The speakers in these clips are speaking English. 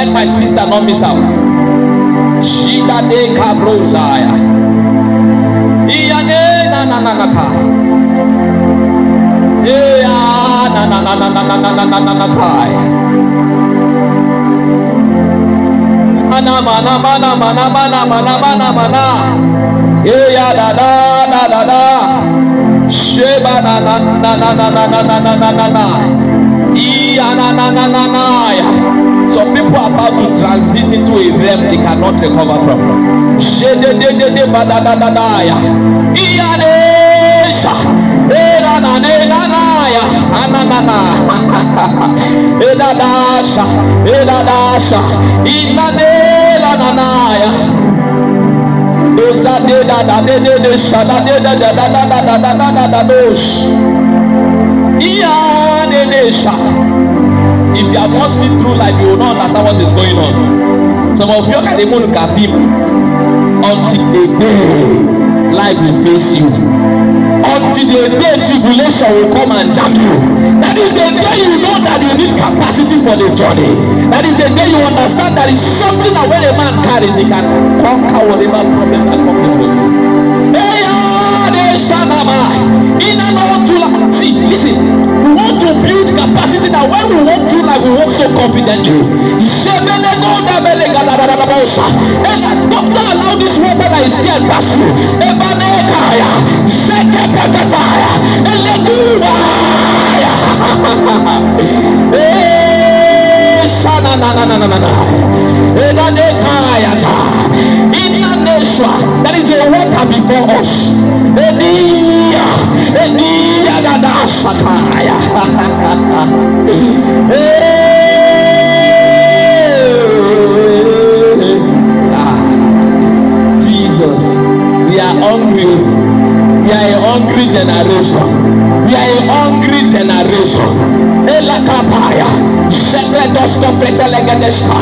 Let my sister not miss out. Shida de kabrozaya. Iyane na na na na na. Eya na na na na na na na na na na ka. Ana mana mana mana mana mana mana mana. Eya da da da da da. Sheba na na na na na na na na na na na. Iya na na na na na ya. people are about to transit into a realm they cannot recover from. Shedededede badadadadaya. Iyanesha. Erananenanaya. Ananana. Edadasha. Edadasha. Inanelananaya. Dosa dedadadedede shadadedadadadadadadadadosh dey if you have not seen through life you will not understand what is going on some of you can even look until the day life will face you until the day tribulation will come and jam you that is the day you know that you need capacity for the journey that is the day you understand that it's something that when a man carries he can conquer whatever problem that comes with him. Listen, we want to build capacity that when we walk through life, we walk so confidently. da Don't allow this water that is here pass you. Ebanekaya, Sekepetaya, Eleguaya. Eh, Shana na na na na na na. Ebanekaya ta. Inna That is the water before us. Edia, Edia. Ah, jesus we are hungry we are a hungry generation we are a hungry generation elakapaya shepherd us not better like a despa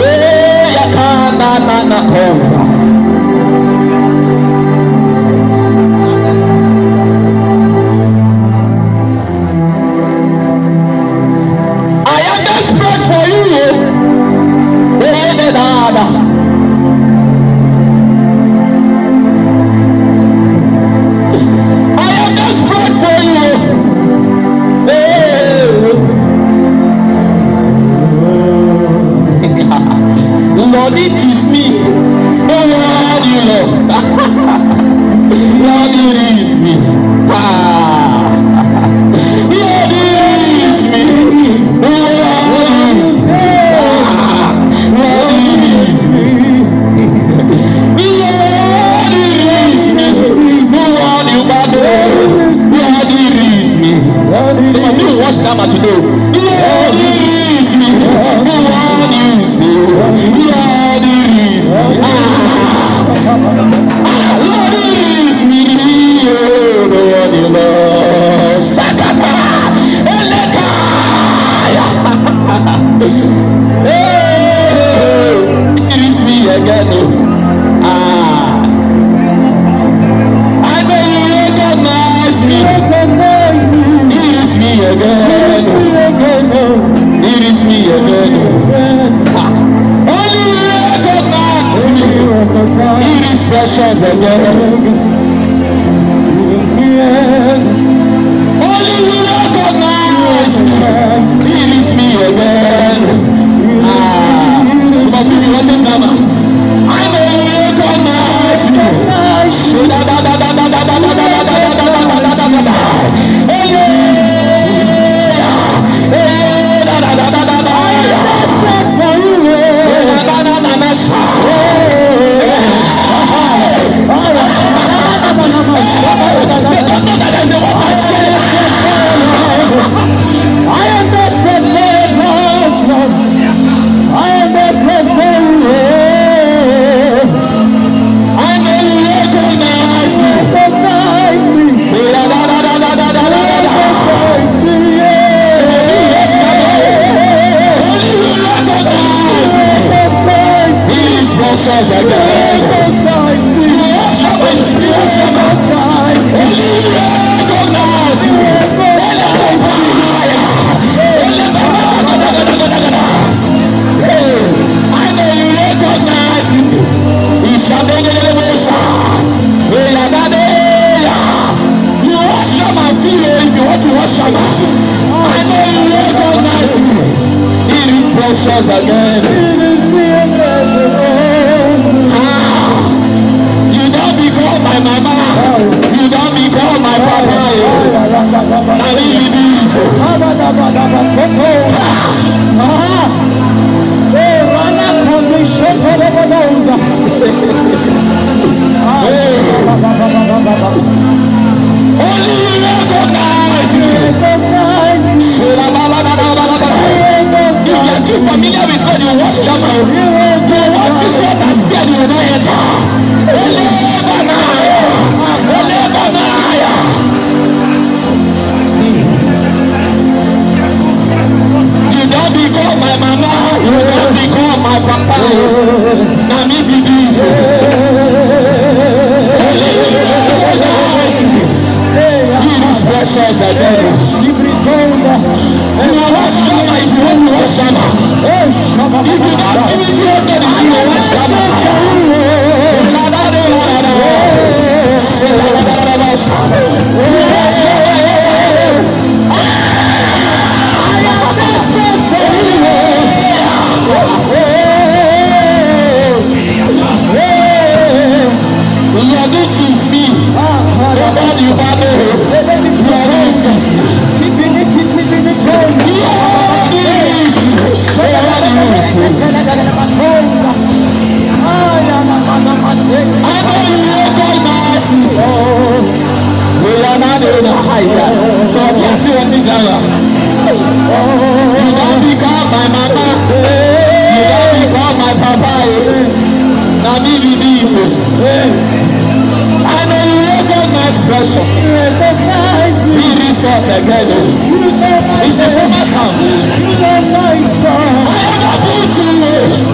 eyakana na na pose. naira. You don become my mama, you don become my papa, na me be the I know you recognize pressure. Be resource again o. It's a famous house. I am not good to you.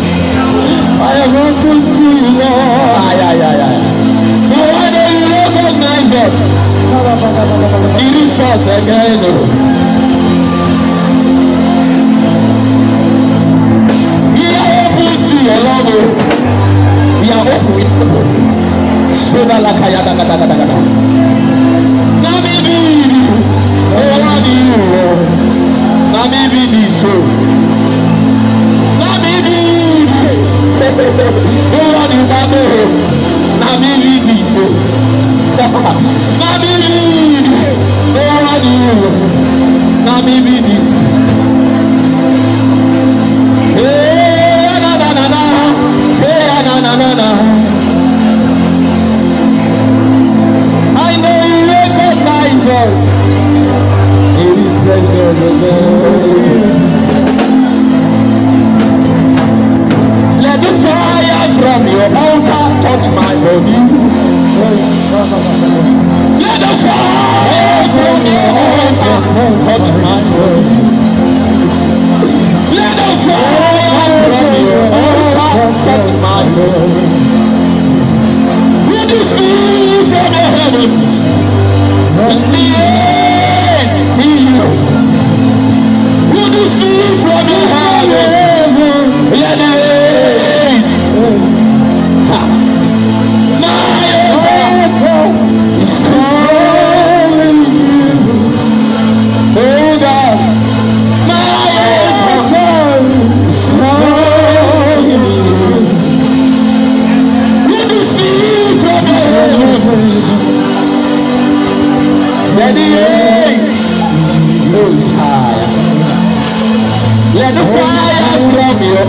ẹ̀rọ tó sí i lọ. But why don't you recognize us? It is us again. We are open to your love. We are open with people. Soda la kaya da da da da da da. Na mi bi ni, o wa ni o, na mi bi ni so. Bọ́lá ni wọ́n mú o. Nàmí rí mi ìfò. Nàmí rí mi. Bọ́lá ni wọ́n.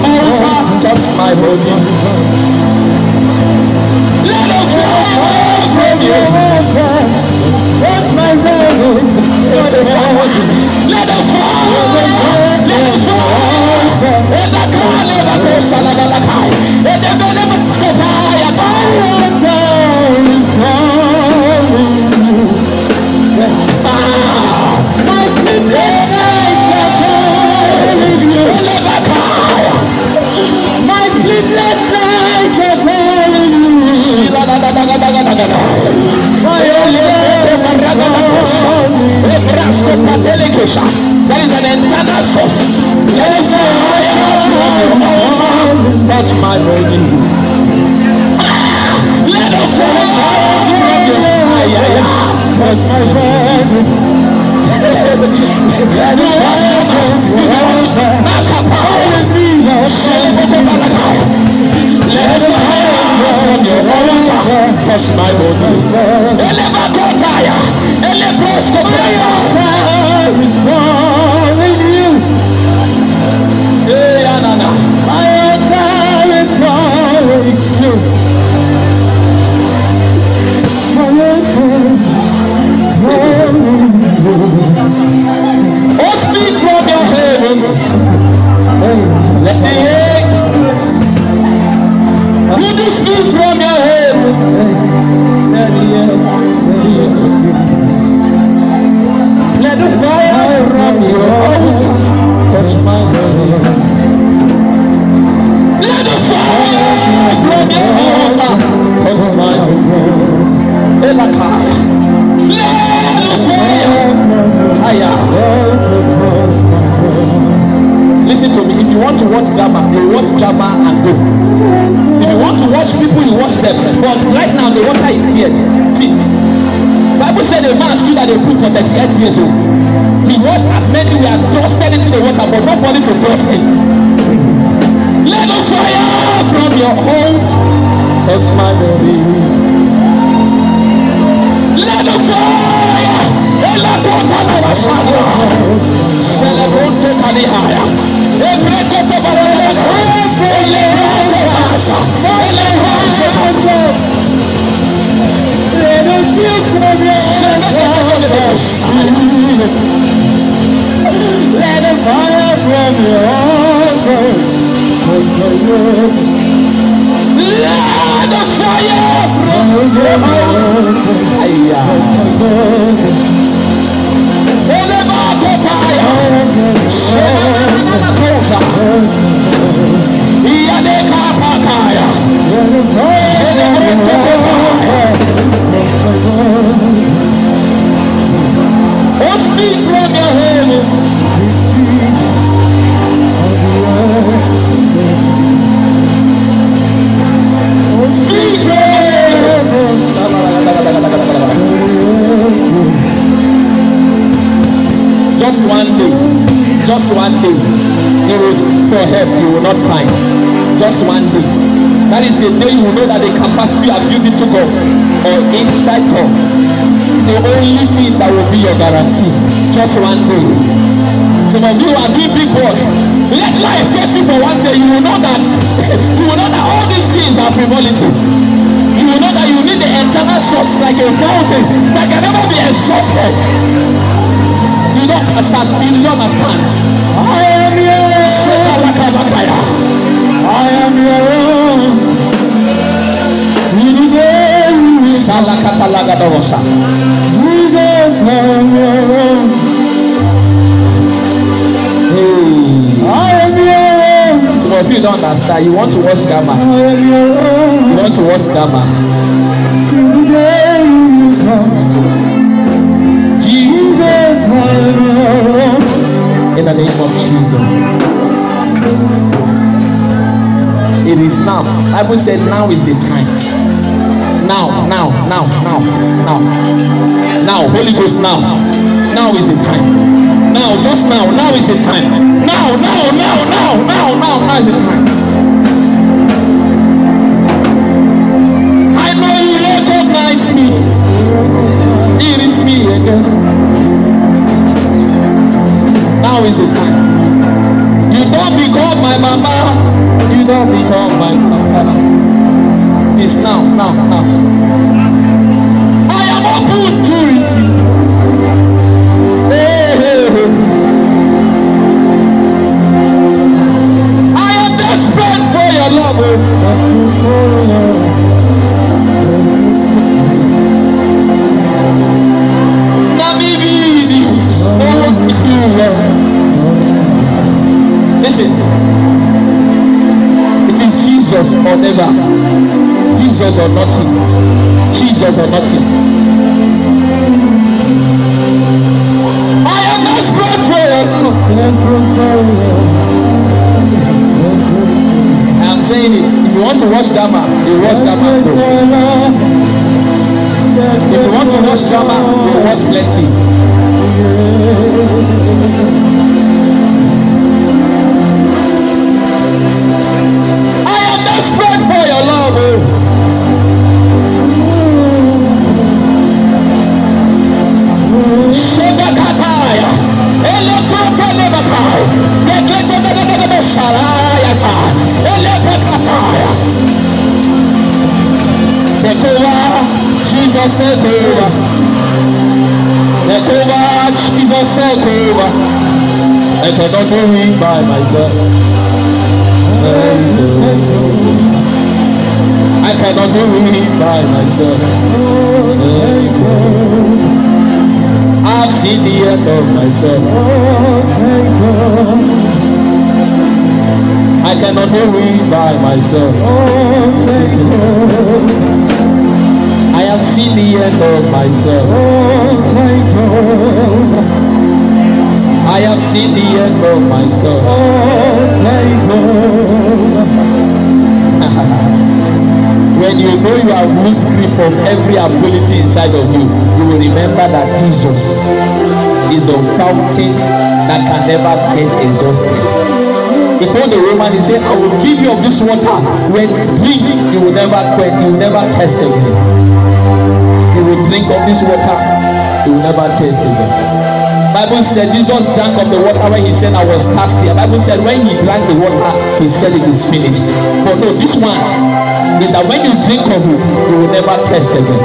your altar touch my body. Let the fire from you. Touch my body. my the touch my body. 38 years old. He washed as many we were trusted into the water, but nobody to trust him. Let the fire from your heart, hold my baby. Let the fire. Elakota na washaga. Celebrate totally higher. Every koto barele. Ele hasha. Ele hasha. Let us feel from your Yes, Jesus. Let the fire from your altar Let the fire from your altar consume. Olema kopaya, shema na kosa. Iyane kapakaya, shema na kopaya. just one day you will for help you will not find just one day that is the day you know that the capacity you have used it to go or inside God is the only thing that will be your guarantee. Just one day. Some of you are doing big work. Let life face you for one day. You will know that you will know that all these things are frivolities. You will know that you need the eternal source like a fountain that can never be exhausted. You don't understand. You don't understand. I am your own. I am your own. Shala katalaga dosa. Jesus Some of you don't understand. You want to watch Gamma. I You want to watch Gamma. Jesus In the name of Jesus. It is now. I Bible say now is the time. now, now, now, now, now. Now, Holy Ghost, now. Now is the time. Now, just now, now is the time. Now, now, now, now, now, now, now is the time. I know you recognize me. It is me again. Now is the time. You don't become my mama. You don't become my papa now, now, now. I am open to receive. Hey, hey, hey. I am desperate for your love. Listen, it is Jesus or never. Jesus or nothing. Jesus or nothing. is I cannot it by myself. I have seen the end of myself. I have seen the end of myself. when you know you are root free from every ability inside of you you will remember that jesus is the fountain that can never get exhausted he told the woman he say i will give you of this water when drink you will never quench you will never thirst again you will drink of this water you will never thirst again. Bible said Jesus drank of the water when he said I was thirsty. Bible said when he drank the water, he said it is finished. But no, this one is that when you drink of it, you will never thirst again.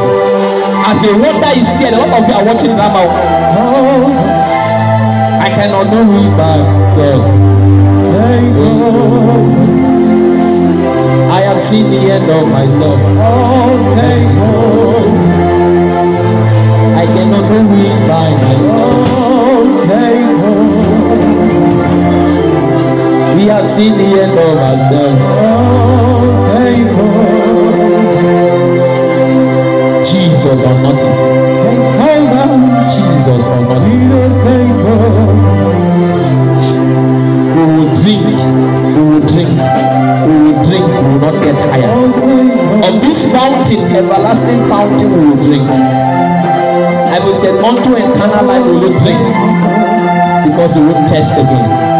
As the water is still, a lot of you are watching now. Oh, I cannot do it myself. I have seen the end of myself. I cannot do it by myself. We have seen the end of ourselves. fountain, everlasting fountain will you drink. I will say, unto eternal life will you drink. Because you won't test again.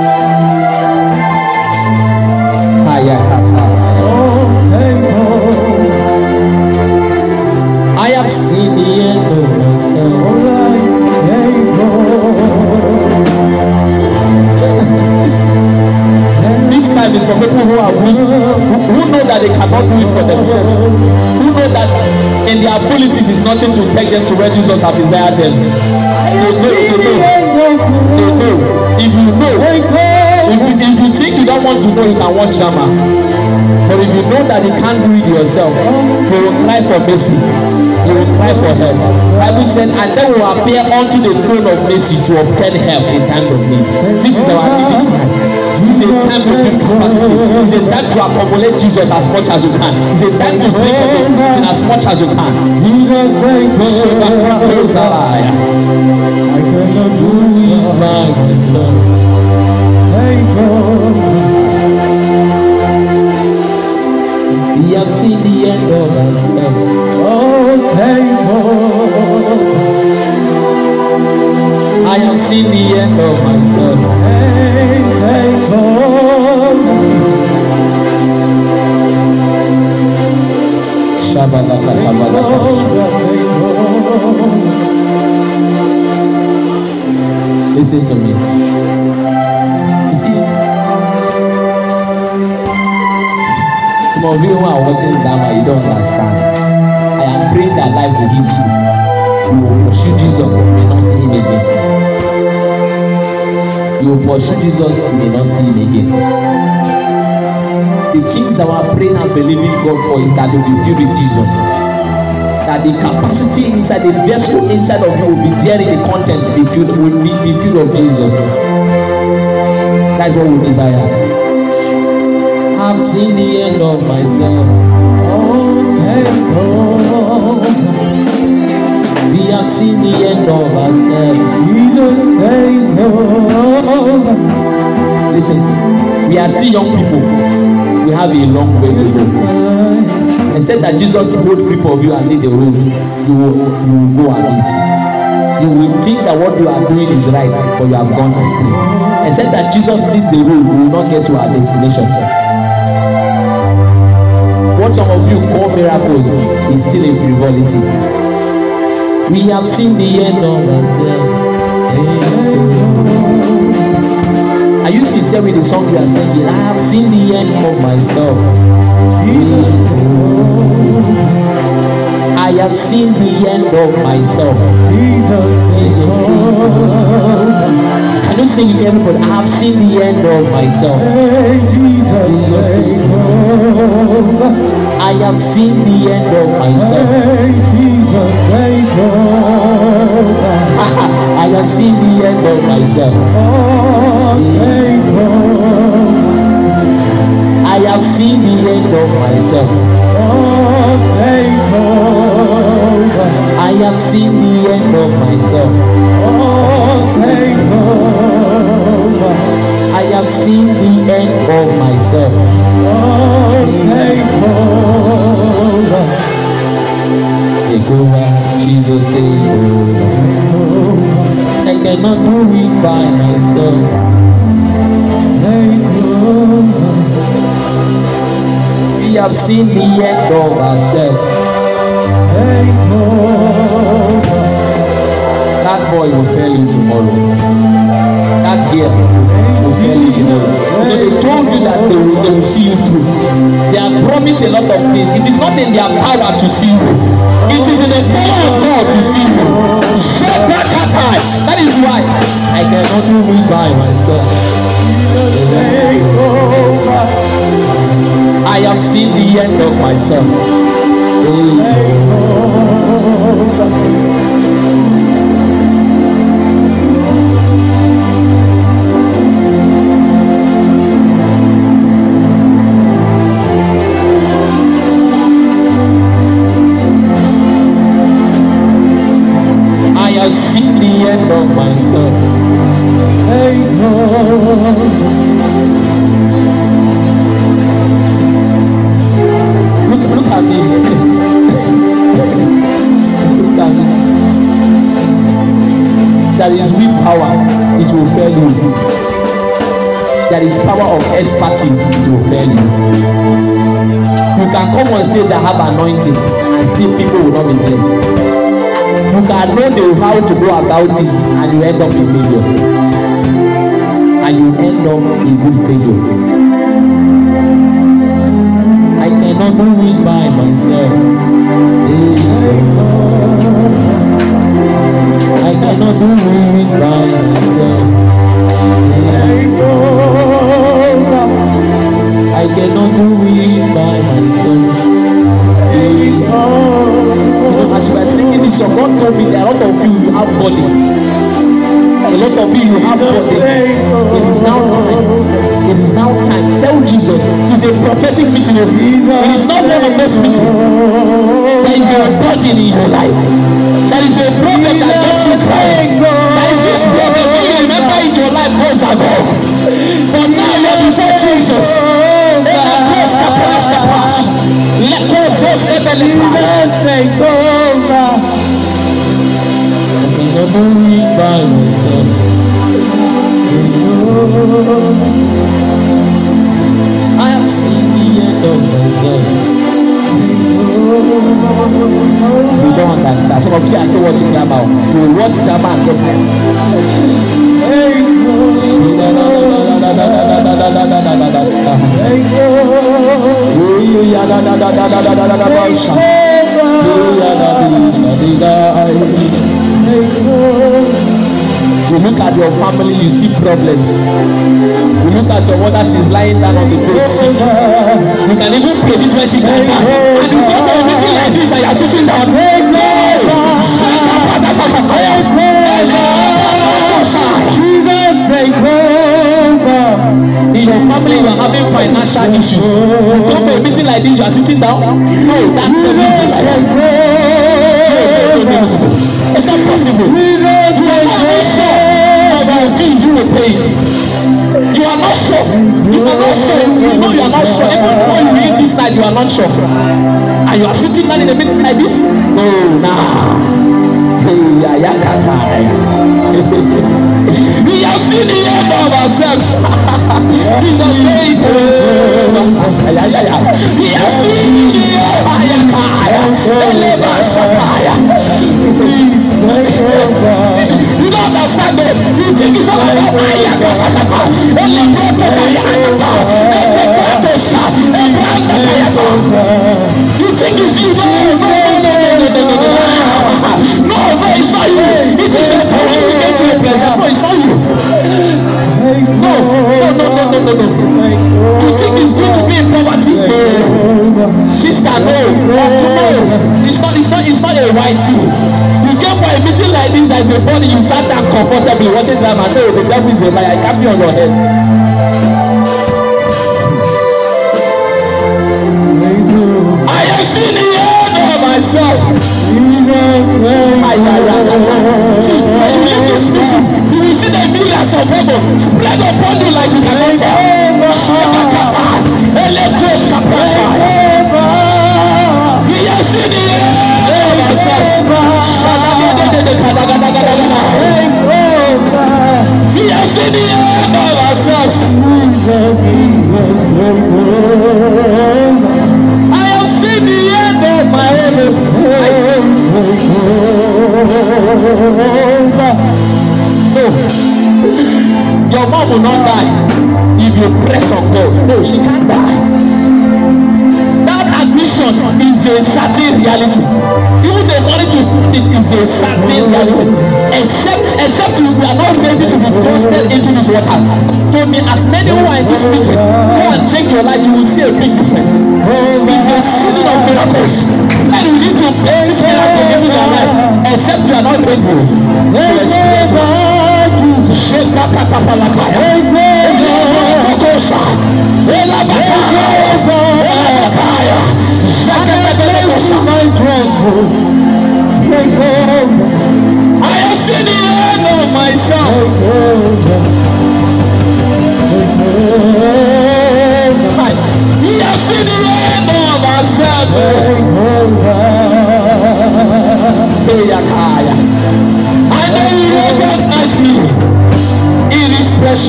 I have seen the end of myself. time is for people who are weak, who, who know that they cannot do it for themselves, who know that in their abilities is nothing to take them to where Jesus has desired them. No, no, no, no, no. know. If you know, if you, if you think you don't want to know, you can watch drama. But if you know that you can't do it yourself, you will cry for mercy. You will cry for help. Bible said, and then will appear unto the throne of mercy to obtain help in times of need. This is our needy tonight. c'est a time to build capacity. It's a time to accumulate Jesus as much as you can. It's a time to as much as you can. Jesus thank prattles I cannot do Thank God. We have seen the Oh, thank God. I have seen the end of my myself. Hey, hey, oh. Shabalaka, shabalaka. Listen to me. You see, some of you who are watching drama, you don't understand. I am praying that life will heal you. You will pursue Jesus, you may not see him again. You will pursue Jesus, you may not see him again. The things that we praying and believing God for is that they will be filled with Jesus. That the capacity inside the vessel inside of you will be there in the content be filled will be, be filled of Jesus. That's what we desire. I've seen the end of myself. Oh, okay, oh have seen the end of ourselves. Listen, we are still young people. We have a long way to go. I said that Jesus wrote grip of you and laid the road, you will, you will go abyss. You will think that what you are doing is right, but you have gone astray. I said that Jesus leads the road, we will not get to our destination. What some of you call miracles is still a frivolity. We have seen the end of ourselves. Are you sincere with the song you are singing? I have seen the end of myself. I have seen the end of myself. Jesus. Can you sing it, everybody? I have seen the end of myself. Jesus, I have seen the end of myself. Because ah, where you go, I have seen the end of myself. I have seen the end of myself. I have seen the end of myself. I have seen the end of myself. Oh, around Jesus day I cannot do it by myself We have seen the end of ourselves That boy will fail you tomorrow That girl believe you because they told you that they will they will see you through they have promised a lot of things it is not in their power to see you it is in the power of God to see you shut that that eye that is why I cannot do it by myself I have seen the end of myself. Mm. you can come on stage and have anointing and still people will not be blessed you can know the how to go about it and you end up in failure and you end up in good failure i cannot do it by myself hey. i cannot do it by myself. I cannot do it by myself. You know, as we are singing this your God told me that a lot of you, you have bodies. A lot of you, you have bodies. It is now time. It is now time. Tell Jesus. It's a prophetic meeting. It is not one of those meetings. There is a body in your life. There is a prophet that gets you crying. There is this prophet that you remember in your life goes above. Las cosas que te lindas se encuentran. Cuando o pausado. Así viendo myself. You don't understand. Some of you are still watching drama. You watch drama and get tired. Hey, You look at your family, you see problems. You look at your mother, she's lying down on the bed sick. You can even predict when she can back. And you go for a meeting like this and you're sitting down. Hey, no! your family you are having financial issues you come for a meeting like this you are sitting down no that's the reason like that no no no no it's not possible you are not sure about the things you will pay You are not sure. You are not sure. You know you are not sure. Every time you read this side, you are not sure. And you are sitting down in a meeting like this? No, nah. We have seen the end of ourselves. Jesus, we have seen Hey! and say, devil is a liar, it can't be on your head.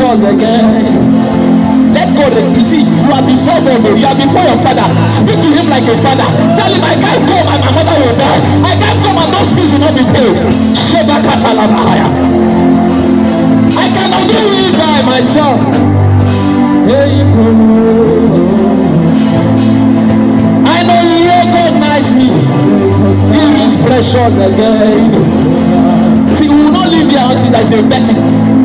us again. Let God you see you are before God oh. you are before your father speak to him like a father tell him I can't come and my mother will die I can't come and those bills will not be paid Sheba Katalabahaya I cannot do it by myself. I know you recognize me. He is precious again. See, we will not live here until there is a betting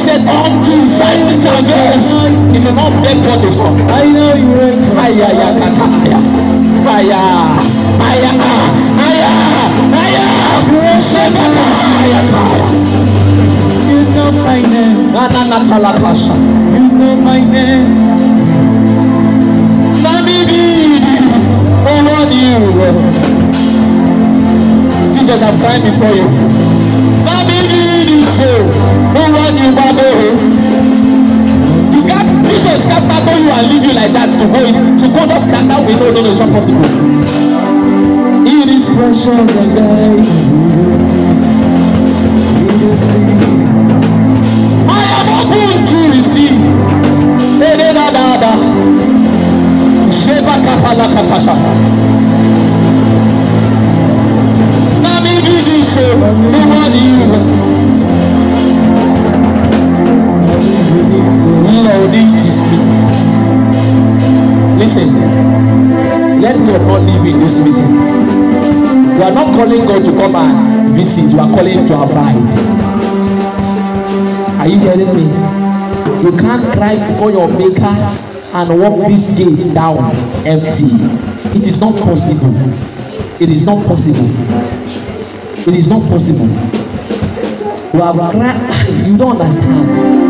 said, Unto five shall goes. If a man beg what is wrong. I know you are. Aya, fire, kata, aya. Aya, aya, aya, aya. Shebaka, aya, aya. You know my name. Nana, natala, kasha. You know my name. Let me be Oh, Lord, you. Jesus, I'm crying before you nowhere you go go you get jesus scatter go you and leave you like that to go to go just scatter we no no no it's not possible it is pressure dey i am open to receive ededadada sheba kapala katasha. Eh, you. holding his meeting. Listen, let God not leave in this meeting. We are not calling God to come and visit, We are calling to abide. Are you hearing me? You can't cry for your maker and walk this gate down empty. It is not possible. It is not possible. It is not possible. You have cried, you don't understand.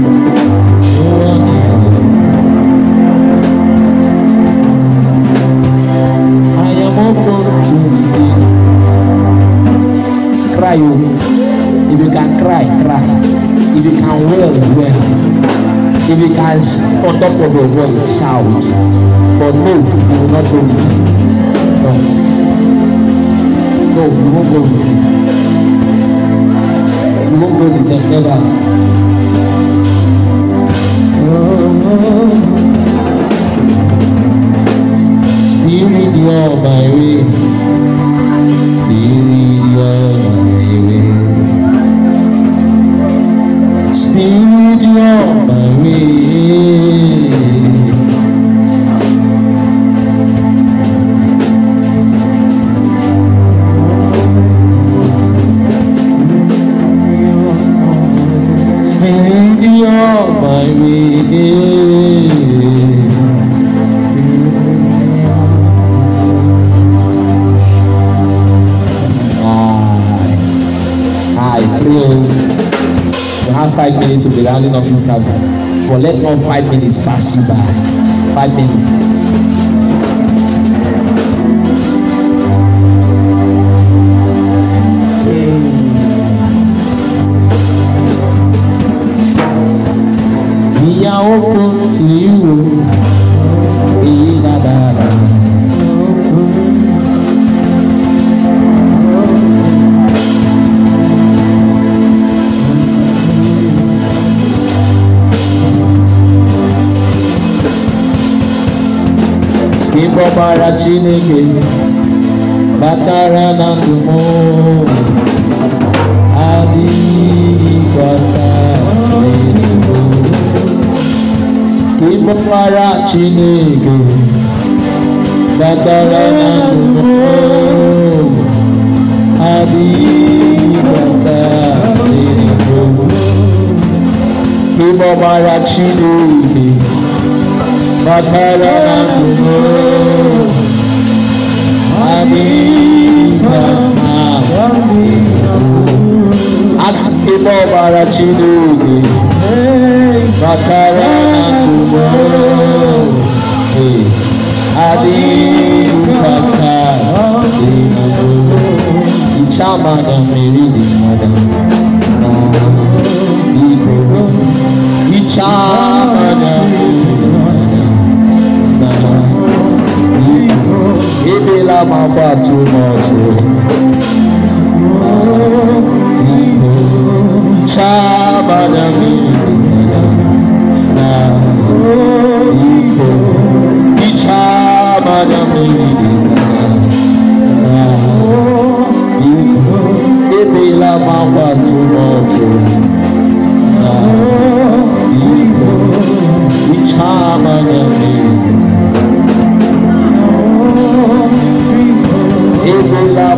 cry o oh. if you can cry cry if you can wail wail if you can on top of your voice shout but no you will not go with him no no you won't go with him you won't go with him never. Oh, oh. Spirit, you're my way. Spirit, you're Rafael Pereira, obrigado e nove sábados. for let not five minutes pass you by five minutes. ọkpara chineke batara na ndụ m adịghị gbata n'eluigwe ịbụ ọkpara chineke batara na ndụ m adịghị gbata chineke batara na ndụ m Asịkpọ ọbara Chineke batara na ndụmọ adịghị mkpata dị Icha madam Mary dị madam na Igbo Icha la mamba too much Shabanami La mamba too much. Ichama nyami.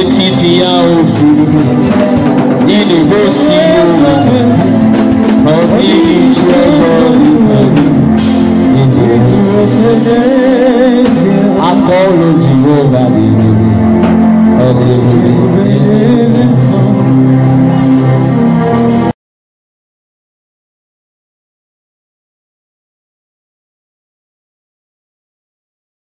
etiti ya osimiri na-egosi ụwa ọdịghị chi ọzọ n'ime aka ọrụ Jehova dị ebube ọ dị ebube